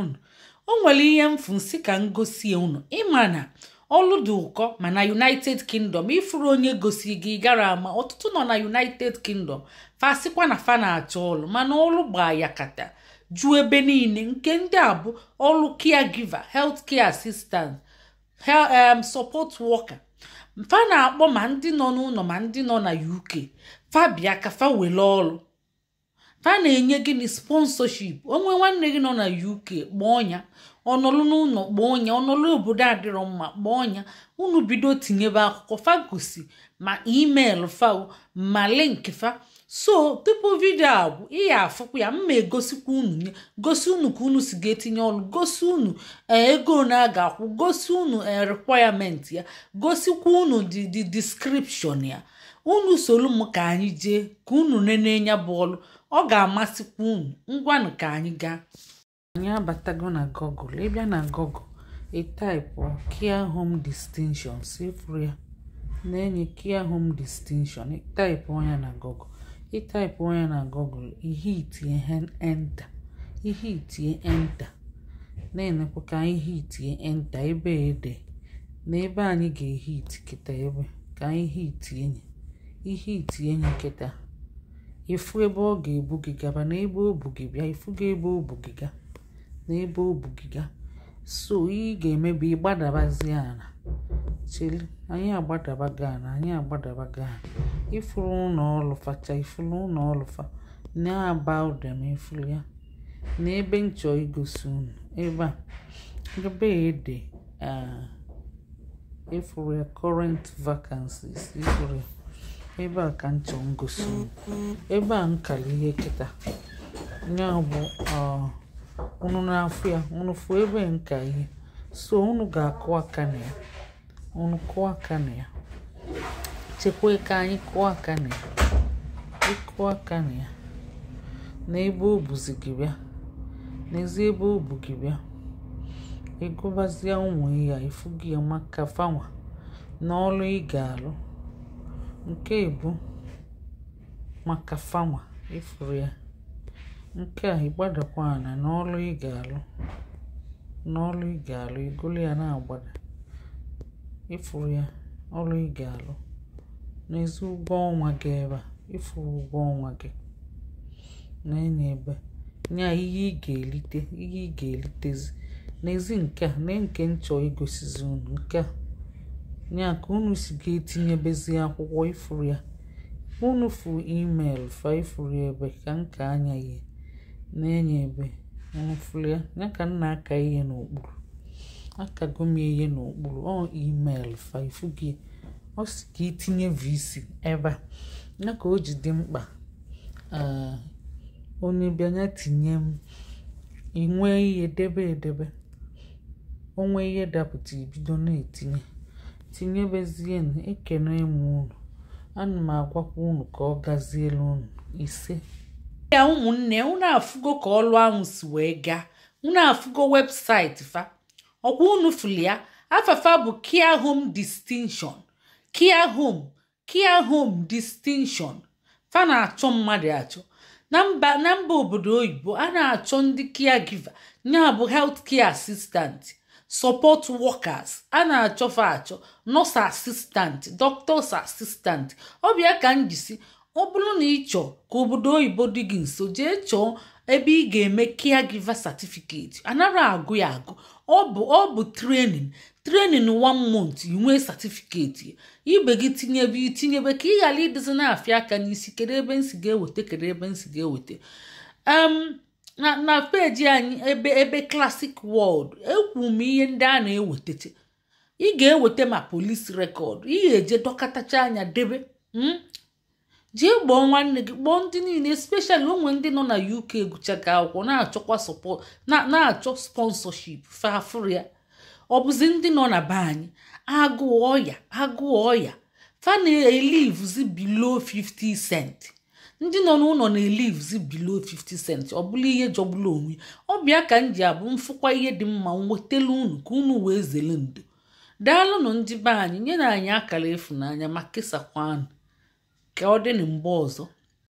onwere o nwere ihe mfu ka m gosie unu ịma na ọlụ dị ụkọ ma na united kingdom ifuru onye gosi gi gara ama ọtụtụ nọ na united kingdom fasikwa na fa na-achọ ọlụ mana ọlụ gbaa ya kata juo ebe niile nke ndị a bụ ọlụ care giver health assistant support worker mfa na-akpọ ma ndị nọ n'ụlọ ma ndị nọ na uk fa bịa ka fa were ha na-enye gịnị sponsorship onwe nwanne gị nọ na uk kpọọ ya ọnọlụ n'ụlọ kpọọ ya ọnọlụ obodo adịrọ mma kpọọ ya unu bido tinyebe akwụkwọ fagosi ma email fao ma link fa so tupu vidio abụ bụ ihe afụkwa ya mma egosikwa unu nye gosi unu ka unu si ga-etinye ọnụ gosi unu eh, ego na a ga-akwụ gosi unu eh, requirement ya gosikwa unu dị description ya unu soro m ka anyị jee ka unu nenenya ya bụ ọ ga-amasịkwa unu ngwanụ ka anyị gaa anyị abatago na Google ịbịa na Google ịtaipu care home distinshon sefuru ya na-enye care home distinshon ịtaipụ ya na Google ịtaipụ ya na Google ihe itinye enta ihe itinye enta na-enekwa ka ihe itinye enta ebe ede na ebe anyị ga-ehit kịta ebe ka itie ya. ihe itinye nkịta ịfụ ebe ọ ga-ebu gị gaba na ebe o bu gị bịa ebe o bu gị ga na ebe o bu gị so ihe ị ga-eme bụ ịgbadabazie ala cheli anyị agbadaba gị ala anyị agbadaba gị ala ịfụrụ ụlọ ọlụfacha ifuru ụlọ ọlụfa na-aba ụda ma ifuru ya na ebe nchọ igosi unu ebe a ebe ede ifụrụ ah, ya current vacancies ifụrụ ya ebe a ka ntị m ebe a nkara ihe kịta ya bụ na-afụ ya ụnụ fụ ebe nka ihe so unu ga-akụ aka na ya ụnụ kụọ aka na ya chekwa ka anyị kụọ aka na ya ịkụ aka na ya na ebe o buzi gị bịa n'ezi ebe o bu gị bịa ịgụbazie ụmụ ya ifu gị maka fanwa na ọrụ ị ga-alụ nke èbu maka fanwa ifuru ya nke a ịgbadakwa ànà n'ọlụ ị ga alụ n'ọlụ ị gà-àlụ egolu ya na agbada ịfụrụ ya ọlụ ị ga-alụ n'ezi ụgwọ ọnwa gị ebe a ịfụrụ ụgwọ ọnwa gị na ebe nye ihe ị ihe ị ga-elitezi n'ezi nke a na nke nchọ igosizi unu nke a ya ka unu si ga-etinyebezi akwụkwọ ifuru ya unu fụ email fa ifuru ebe ka nka anya ihe na-enye ebe unu ya ya ka nna aka ihe n'okpuru aka m ihe n'okpuru ọ email fa ifu gị ọ si ka itinye vc ebe a ya ka o ji dị mkpa ah, onye bịanya tinye m inwe ihe debe edebe onwe ihe dapụta ibido na-etinye tinyebezienụ ekene m unu ana m agwakwa unu ka ọ gazielu unu ise ya ụmụnne unu afụgo ka ọlụ ahụ si wee gaa unu afụgo webụsaịtị fa ọkwa unu fụli ya afafa bụ kia home distinction kia home kia home distinction fa na-achọ mmadụ achọ na mba obodo oyibo a na-achọ ndị kia giva ya bụ health kia sọpọt wọkas a na-achọfa achọ nọs asistant dọktọs assistant ọbịa ka m jisi ọ bụrụ na ị chọọ ka obodo oyibo dị gị nso jee chọọ ebe ị ga-eme giva satifiketi anara agụ ya agụ ọ bụ ọ bụ training wan mont month inwee certificate ibe gị tinyebe itinyebe ka ị ghara idozi na-afịa aka n'isi kedu ebe nsi ga-eweta kedu ebe nsi ga-eweta na na peji anyị ebe ebe klasik wọld ekwu m ihe ndị a na-ewetacha ị ga-eweta ma polisi rekọd ị ga-eje dọkọtacha anya debe hmm? jee gbọọ nwanne gị kpọọ ndị niile especially onwe ndị nọ na uk gụchaga akwụkwọ na-achọkwa na-achọ sponsorship fafria ọ bụzi ndị nọ na be anyị agụụ ya agụụ ya fa na 50 cent ndị nọ n'ụlọ na elives below 50 cent ọ bụla ihe jọgbula onwe ọbịa ka m ji abụ mfụkwa ihe dị mma nwetelu unu ka unu wee zere ndo daalụnụ ndị be anyị nyere anyị akara efu ịfụnanya ma kesakwanụ ka ọ dị na mgbe ọzọ